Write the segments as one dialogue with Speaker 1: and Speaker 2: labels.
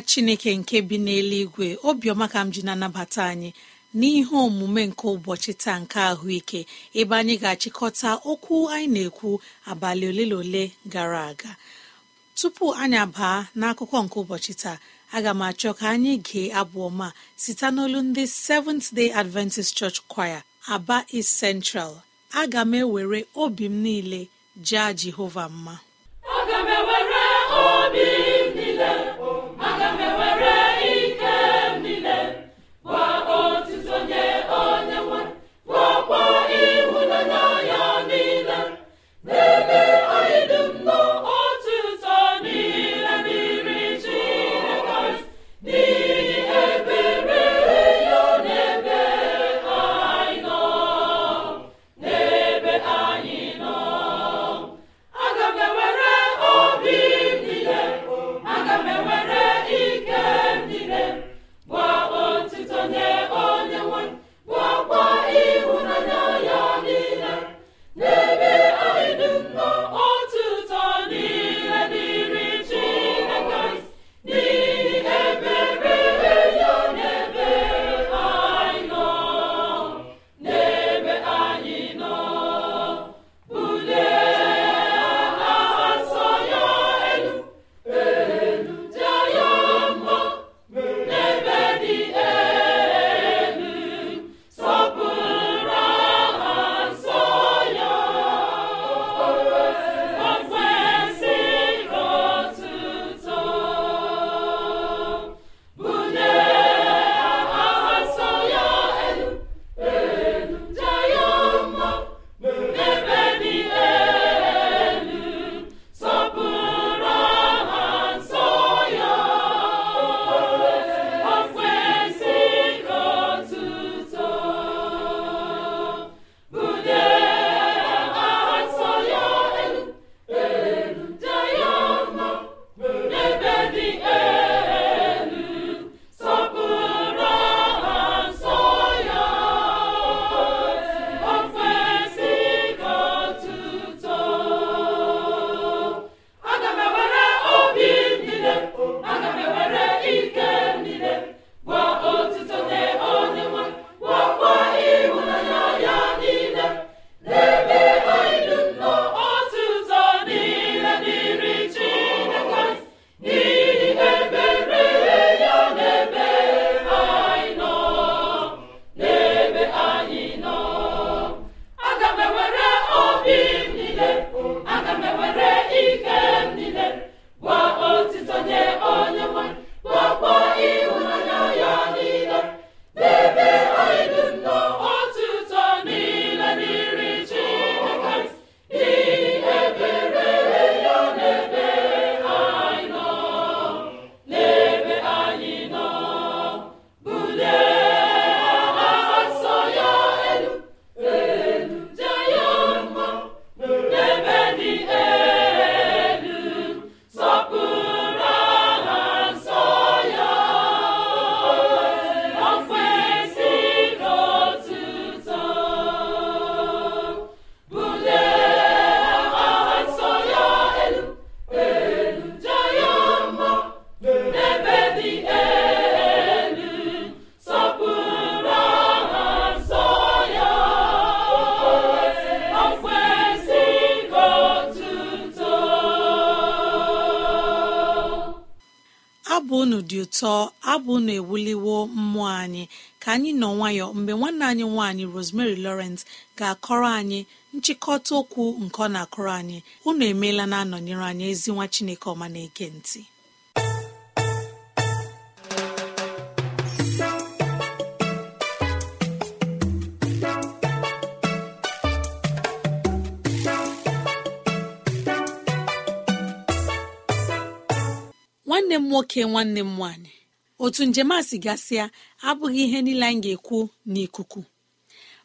Speaker 1: nna chineke nke bi n'eluigwe obiọma ka m ji na-anabata anyị n'ihe omume nke ụbọchị taa nke ahụike ebe anyị ga-achịkọta okwu anyị na-ekwu abalị ole na ole gara aga tupu anyị abaa n'akụkọ nke ụbọchị taa aga m achọ ka anyị gee abụọma site n'olu ndị Seventh Day Adventist Church Choir, Aba East Central aga m ewere obi m niile jaa Jehova mma
Speaker 2: aga m ewere obi
Speaker 1: ga-akọrọ anyị nchịkọta okwu nke ọ na-akọrọ anyị unu emeela na-anọnyere anyị ezi nwa Chineke ọma na ntị nwanne m nwoke nwanne m nwanyị otu njem a si gasịa abụghị ihe niile anyị ga-ekwu n'ikuku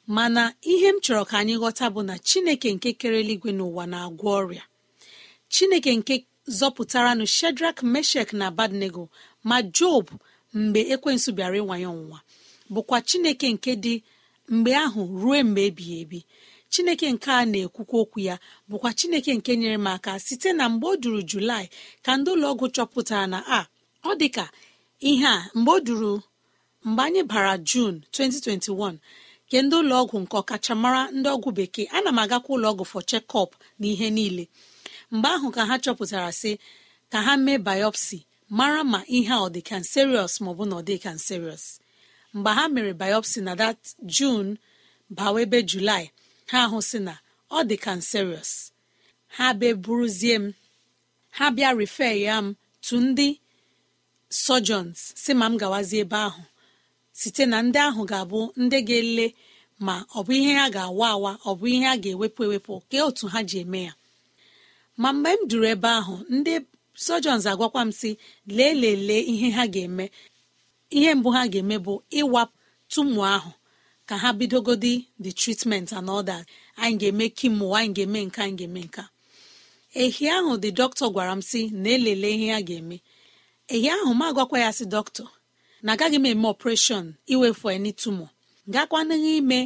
Speaker 1: mana ihe m chọrọ ka anyị ghọta bụ na chineke nke kere eluigwe n'ụwa na-agwọ ọrịa chineke nke zọpụtaranụ shedrak meshek na abadnego ma job mgbe ekwensu bịara ịwanye ọnwụnwa bụkwa chineke nke dị mgbe ahụ ruo mgbe ebighị ebi chineke nke a na-ekwukwa okwu ya bụkwa chineke nke nyere m aka site na mgbe o duru julaị ka ndị ụlọọgwụ chọpụtara na a ah, ọ dịka ihe a mgbe o duru mgbe anyị bara jun 2021 nke ndị ụlọọgwụ nke ọkachamara ndị ọgwụ bekee ana m agakwa ụlọọgwụ fọ chekọp na ihe niile mgbe ahụ ka ha chọpụtara sị ka ha mee biopsy mara ma ihe a ọ dị kanserios maọbụ na ọ dị kanserios mgbe ha mere biopsy na dat jun bawa ebe julaị ha ahụ sị na ọ dị kanserios ha m ha bịa refe m tu ndị sọjons si ma m gawazie ebe ahụ site na ndị ahụ ga-abụ ndị ga-ele ma ọ bụ ihe ha ga-awa awa ọ bụ ihe a ga-ewepụ ewepụ ka otu ha ji eme ya ma mgbe m duru ebe ahụ ndị sojons agwakwa m si lee lelee ihe ha ga-eme ihe mbụ ha ga-eme bụ ịwapụ tumu ahụ ka ha bidogodi the treatment and all anyị ga-eme kimo anyị ga-eme nka anyị ga-eme nka ehi ahụ the dọkịta gwara m si na elele ihe ha ga-eme ehi ahụ m agwakwa ya si dọkịta na agaghị m eme ọpreshọn iwefu eni tumo gakwanaghị ime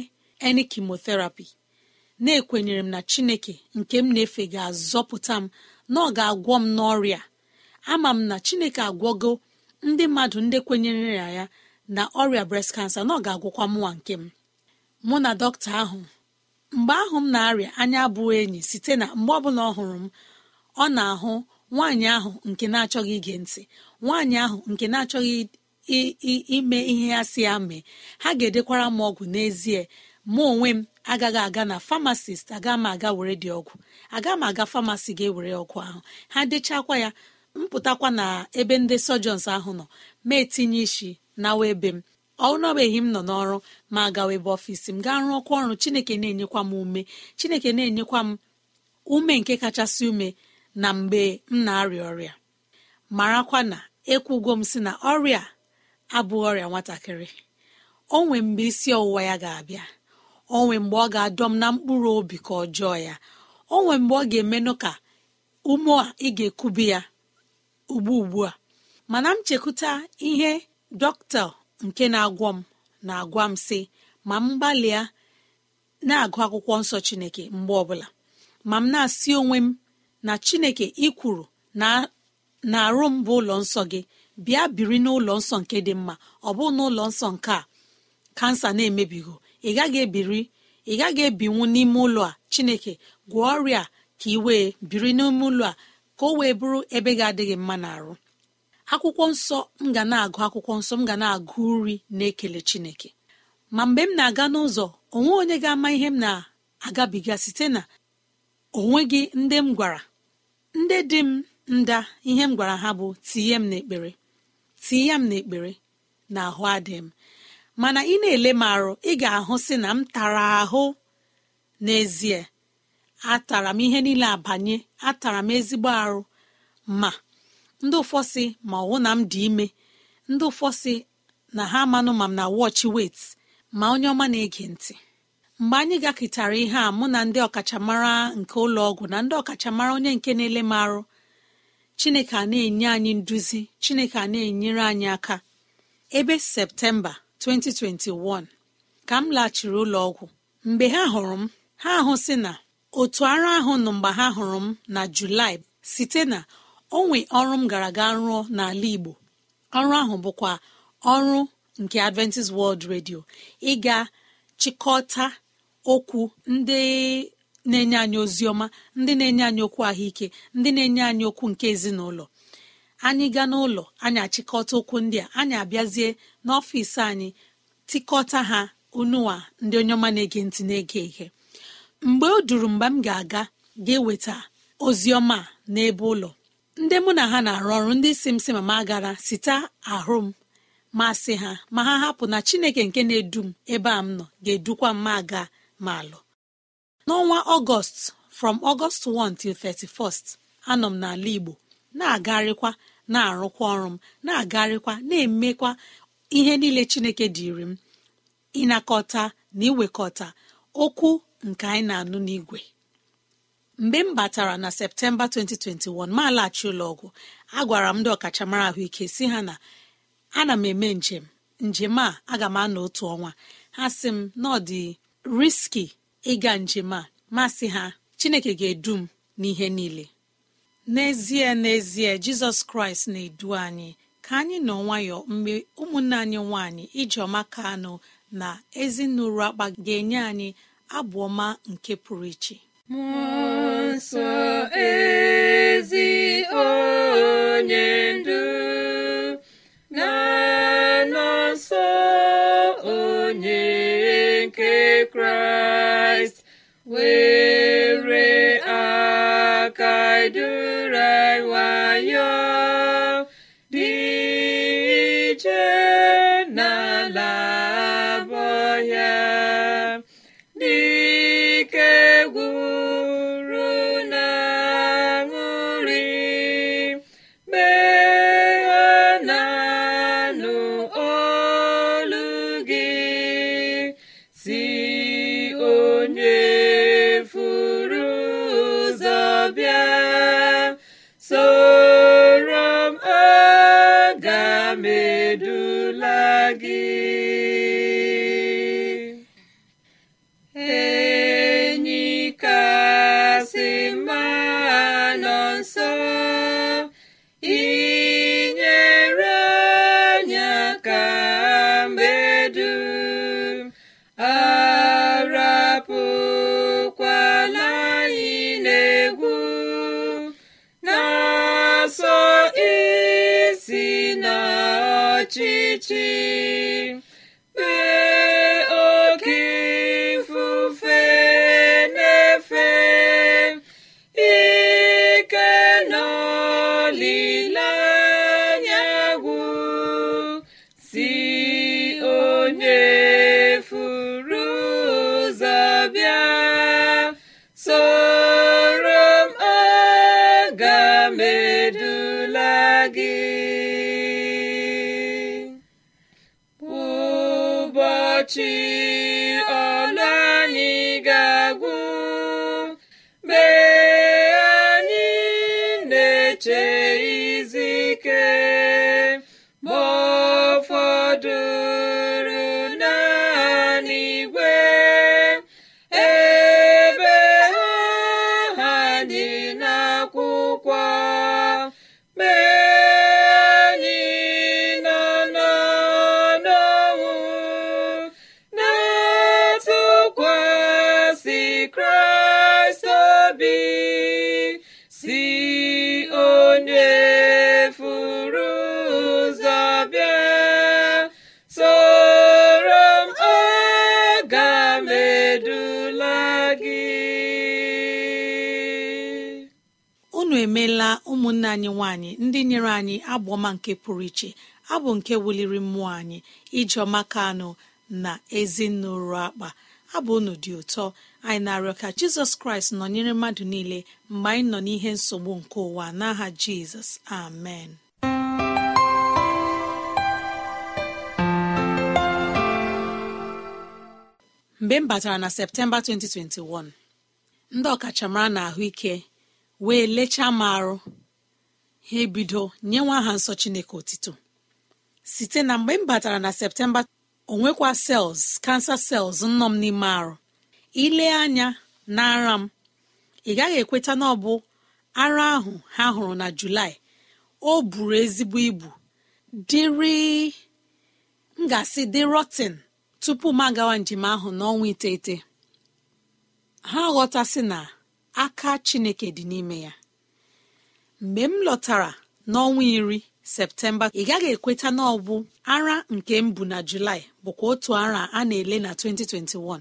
Speaker 1: eni kemotherapy na-ekwenyere m na chineke nke m na-efe ga-azọpụta m na ọ ga-agwọ m n'ọrịa ama m na chineke agwọgo ndị mmadụ ndị kwenyere ya ya na ọrịa breast cancer na ọ ga-agwọkwa mụwa nke m mụ na dọkịta ahụ mgbe ahụ m na-arịa anya abụghị enyi site na mgbe ọbụla ọ hụrụ m ọ na-ahụ nwaanyị ahụ nke na-achọghị ige ntị nwaanyị ahụ nke na-achọghị ime ihe ya si ya mee ha ga-edekwara m ọgwụ n'ezie mụ onwe m agaghị aga na famasist aga m aga were dị ọgwụ aga m aga famasi ga-ewere ọgwụ ahụ ha dechakwa ya mpụtakwa na ebe ndị sọjọns ahụ nọ ma etinye isi na ebe m ọnọbeghị m nọ n'ọrụ ma agawa ebe ọfisi m gaa rụọkwa ọrụ chineke na-enyekwa m ume chineke na-enyekwa m ume nke kachasị ume na mgbe m na-arịa ọrịa marakwa na ekwugo m si na ọrịa abụ ọrịa nwatakịrị nwee mgbe isi ọwụwa ya ga-abịa onwe mgbe ọ ga-adọ m na mkpụrụ obi ka ọjọọ ya o nwee mgbe ọ ga-emenụ ka ume a ị ga-ekubi ya ugbu ugbu a mana m chekwuta ihe dọkịta nke na-agwọ m na-agwa m sị ma m gbalịa na-agụ akwụkwọ nsọ chineke mgbe ọbụla ma m na-asị onwe m na chineke ikwuru na arụ m bụ ụlọ nsọ gị bịa biri n'ụlọ nsọ nke dị mma ọ bụ n'ụlọ nsọ nke a kansa na-emebigo ị gaghị ebiri ị gaghị ebinwu n'ime ụlọ a chineke gwọọ ọrịa ka ị wee biri n'ime ụlọ a ka o wee bụrụ ebe ga-adịghị mma n'arụ akwụkwọ nsọ m ga na-agụ akwụkwọ nsọ m ga na-agụ uri na-ekele chineke ma mgbe m na-aga n'ụzọ onwe onye ga-ama ihe m na-agabiga site na onwe gị ndị m gwara ndị dị m nda ihe m gwara ha bụ tinye m n'ekpere tii ya m n'ekpere na ahụ adị m mana ị na-ele m arụ ị ga-ahụ si na m tara ahụ n'ezie atara m ihe niile abanye atara m ezigbo arụ ma ndị ụfọsị ma ọwụ na m dị ime ndị ụfọsị na ha amanụ ma m na wọchị wet ma onye ọma na-ege ntị mgbe anyị gakịtara ihe a mụ na ndị ọkachamara nke ụlọ ọgwụ na ndị ọkachamara onye nke na-ele m arụ chineke a na-enye anyị nduzi chineke a na-enyere anyị aka ebe septemba 2021 ka m laghachiri ụlọ ọgwụ mgbe ha hụrụ m ha hụsị na otu ara ahụ nọ mgbe ha hụrụ m na julaị site na onwe ọrụ m gara aga rụọ n'ala igbo ọrụ ahụ bụkwa ọrụ nke adventist world radio ịga chịkọta okwu ndị na-enye anyị ozi ọma ndị na-enye anyị okwu ahụike ndị na-enye anyị okwu nke ezinụlọ anyị gaa n'ụlọ anyị achịkọta okwu ndị a anyị abịazie n'ọfịsi anyị tikọta ha unuwa ndị onye ọma na-ege ntị na-ege ihe mgbe o duru mgbe m ga-aga ga-eweta oziọma n'ebe ụlọ ndị mụ na ha na-arụ ọrụ ndị si m si ma ma gara site ahụ m masị ha ma ha hapụ na chineke nke na-edu m ebe a m nọ ga-edukwa mma aga ma alụ n'ọnwa ọgọst from ọgọst 1 31st anọ m n'ala igbo na-agarịkwa na-arụkwa ọrụ m na-agarịkwa na-emekwa ihe niile chineke dịrị m ịnakọta na iwekọta okwu nke anyị na-anụ n'igwe mgbe m batara na septemba 2021 ma laghachi ụlọọgwụ agwara m ndị ọkachamara ahụike si ha na ana m eme njem njem a aga m anọ otu ọnwa ha sị m na ọ riski ịga njem a masị ha chineke ga-edu m n'ihe niile n'ezie n'ezie jizọs kraịst na-edu anyị ka anyị nọ nwayọ mgbe ụmụnne anyị nwanyị ijeọma ka anụ na ezinụlọ akpa ga-enye anyị abụ ọma nke pụrụ iche
Speaker 3: onye ndu na kraịst were aka duru nwayọọ dị iche si na
Speaker 1: anyị nwanyị ndị nyere anyị ọma nke pụrụ iche abụ nke wuliri mmụọ anyị ijeọma anụ na ezinụlọ akpa abụ unu dị ụtọ anyị na-arịọ ka jizọs kraịst nọnyere mmadụ niile mgbe anyị nọ n'ihe nsogbu nke ụwa n'aha jizọs amen mgbe m batara na septemba 2021 ndị ọkachamara na ahụike wee lechaa m arụ ha ebido nye nwa aha nsọ chineke otito site na mgbe m batara na septemba onwekwa sels kansa sels nnọ m n'ime arụ ile anya na ara m ị gaghị ekweta na ọ bụ ara ahụ ha hụrụ na julaị o buru ezigbo ibu dịrị m ga dị rotin tupu m agawa njem ahụ n'ọnwa iteghete ha ghọtasị na aka chineke dị n'ime ya mgbe m lọtara n'ọnwa iri septemba ị gaghị ekweta na ọbụ ara nke m bụ na julaị bụkwa otu ara a na-ele na 2021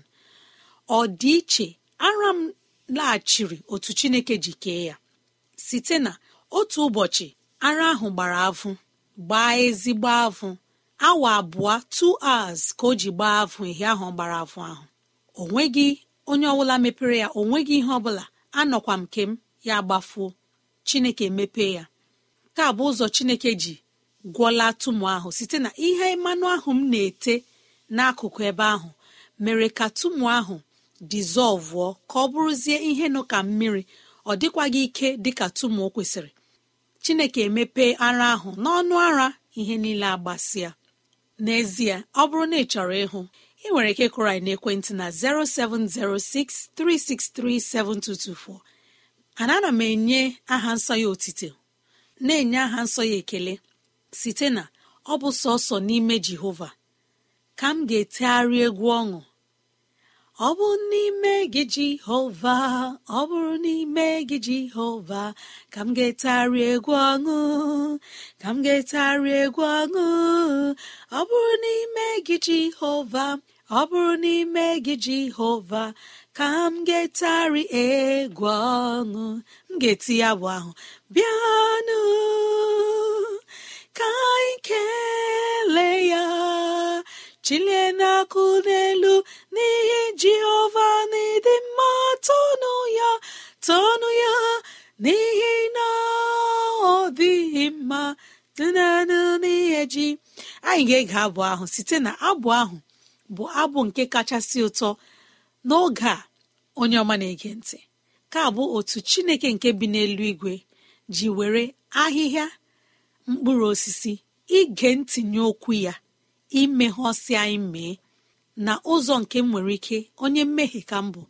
Speaker 1: ọ dị iche ara m laghachiri otu chineke ji kee ya site na otu ụbọchị ara ahụ gbara avụ gbaa ezigbo avụ awa abụọ 2:00 ka o ji gbaa avụ ihe ahụ gbara avụ ahụ onwe onye ọbụla mepere ya o nweghị ihe ọbụla anọkwa m nke m ya gbafuo chineke mepee ya nke a bụ ụzọ chineke ji gwọlatụ tumu ahụ site na ihe mmanụ ahụ m na-ete n'akụkụ ebe ahụ mere ka tumu ahụ dizọlvụọ ka ọ bụrụzie ihe nọ ka mmiri ọ dịkwaghị ike dịka tumu o kwesịrị chineke emepee ara ahụ n'ọnụ ara ihe niile agbasịa n'ezie ọ bụrụ na ị chọrọ ịhụ ị nwere ike kụrụ na n'ekwentị na 0706 ana ana m enye aha nsọ ya otite na-enye aha nsọ ya ekele site na ọ bụ sọsọ n'ime jehova ka m ga-etegharị egwu ọṅụ ọ bụrụ n'ime gị jehova ọ bụrụ n'ime gị jehova ka m ga-etegharị egwu ọṅụ ka m ga-etegharị egwu ọṅụ ọ bụrụ n'ime gị jehova ọ bụrụ n'ime gị jehova ka m getari egwu ọṅụ m ga-eti ya bụ ahụ bịanụ ka anyị kele ya chilie n'akụ n'elu n'ihi jehova n'ịdị mma tonu ya ya n'ihi na ọ dịghị mma dịnanụ n'ihe ji anyị ga-ege abụ ahụ site na abụ ahụ bụ abụ nke kachasị ụtọ n'oge a onye ọma na-ege ntị ka bụ otu chineke nke bi n'elu igwe ji were ahịhịa mkpụrụ osisi ige ntinye okwu ya imegheọsi anyị mee na ụzọ nke m nwere ike onye mmehie ka m bụ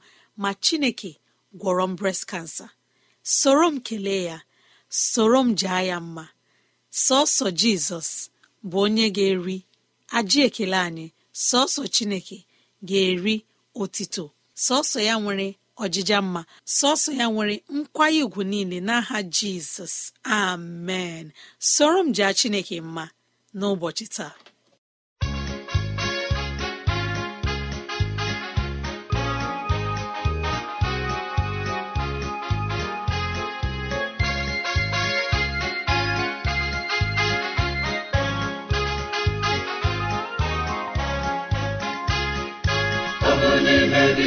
Speaker 1: ma chineke gwọrọ m breast cancer soro m kelee ya soro m jaa ya mma sọsọ jizọs bụ onye ga-eri ajị ekele anyị sọsọ chineke ga-eri otito sọsọ ya nwere ọjịja mma sọsọ ya nwere nkwanye ùgwù niile n'aha jizọs amen soro m jaa chineke mma n'ụbọchị taa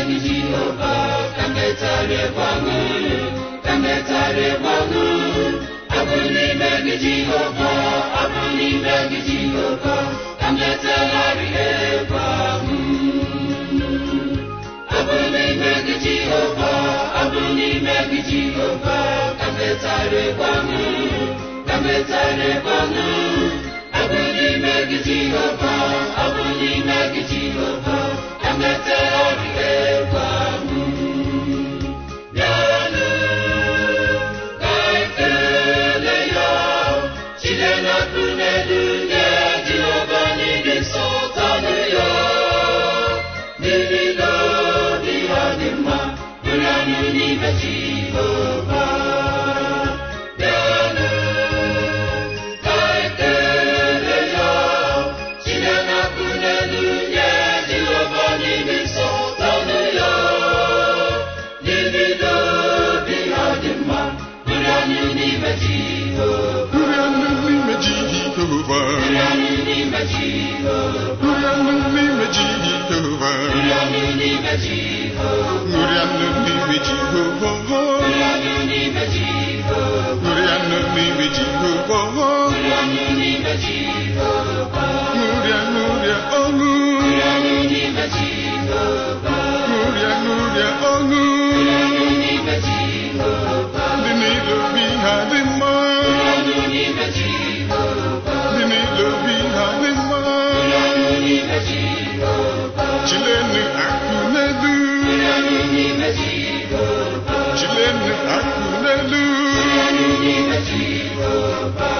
Speaker 4: Tembeni Jehova, kambetsare kwangu, kambetsare kwangu. Abunibeni Jehova, abunibeni Jehova, kambetsare kwangu. Abunibeni Jehova, abunibeni Jehova, kambetsare kwangu, kambetsare kwangu. Abunibeni Jehova, abunibeni Jehova. emetela gị egwu ahụ n'ime Jehova ṅụrịa
Speaker 5: n'ime Jehova ṅụrịa n'ime Jehova ṅụrịa ṅụrịa ọṅụ ṅụrịa ṅụrịa ọṅụ ndị na-edobe ha dị
Speaker 4: Jehovah.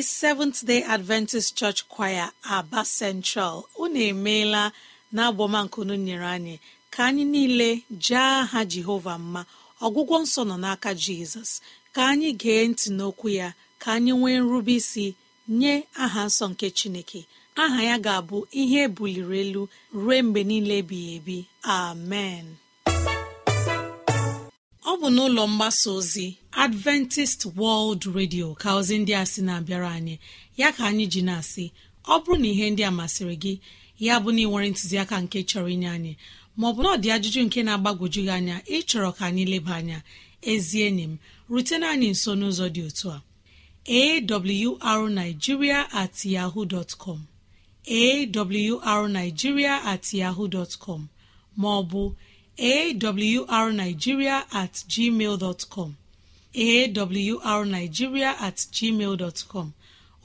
Speaker 1: ndị seventh day adventist church choir aba central unu emeela na abọmankunu nyere anyị ka anyị niile jee aha jehova mma ọgwụgwọ nsọ nọ n'aka jizọs ka anyị gee ntị n'okwu ya ka anyị nwee nrube isi nye aha nsọ nke chineke aha ya ga-abụ ihe buliri elu ruo mgbe niile ebighị ebi amen ọ bụ n'ụlọ mgbasa ozi adventist world radio ka ozi ndị a sị na-abịara anyị ya ka anyị ji na-asị ọ bụrụ na ihe ndị a masịrị gị ya bụ na ịnwere ntụziaka nke chọrọ inye anyị maọbụ na ọ dị ajụjụ nke na-agbagwoju gị anya ịchọrọ ka anyị leba anya ezi enyi m rutena anyị nso n'ụzọ dị otu a arigiria at yahoo com at yahoo dot maọbụ awrnigeria at gmail dotcom awrnigeria at gmail com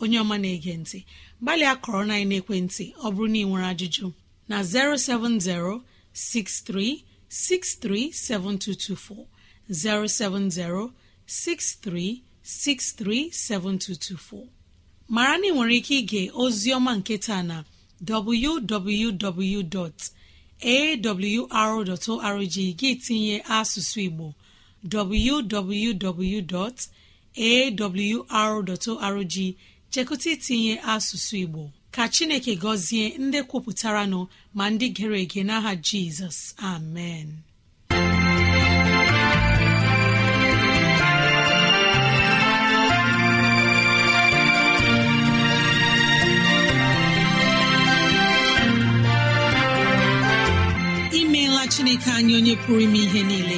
Speaker 1: onye ọma na-ege ntị gbalịa kọrọ na ekwentị ọ bụrụ na ị nwere ajụjụ na 07063637224 mara na ị nwere ike ige ozioma nketa na www.awr.org gị tinye asụsụ Igbo www.awr.org chekụta itinye asụsụ Igbo ka Chineke gọzie ndị kwupụtara nọ ma ndị gere ege n'aha Jizọs amen imeela Chineke anyị onye pụrụ ime ihe niile